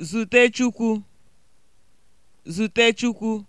zute Chukwu zute Chukwu